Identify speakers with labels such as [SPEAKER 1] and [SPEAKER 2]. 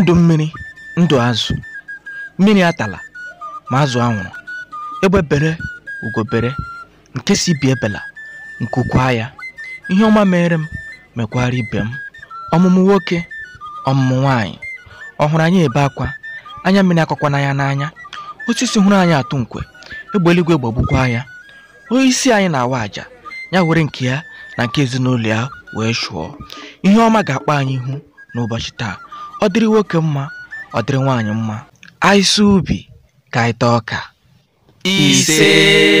[SPEAKER 1] ndụ mmiri ndụ azụ mmiri atala ma azụ anwụrụ bere ugobere nke si bi ebela nke ukwaa ya ihe ọma mere m mekwara ibe m ọmụmụ nwoke ọmụmụ nwaanyị ọhụrụ anya anyị ebe akwa anya mmiri akọkwana nanya n'anya osisi hụrụ anyị atụ nkwe egbe eluigwe gbagbukwa ya onye isi anyị na-awa àjà ya were nke ya na nke ezinụlọ ya wee chụọ ihe ọma ga-akpa anyị ihu n'ụbọchị taa ọ dịrị nwoke mma ọ dịrị nwaanyị mma anyị ubi ka anyị ọka ise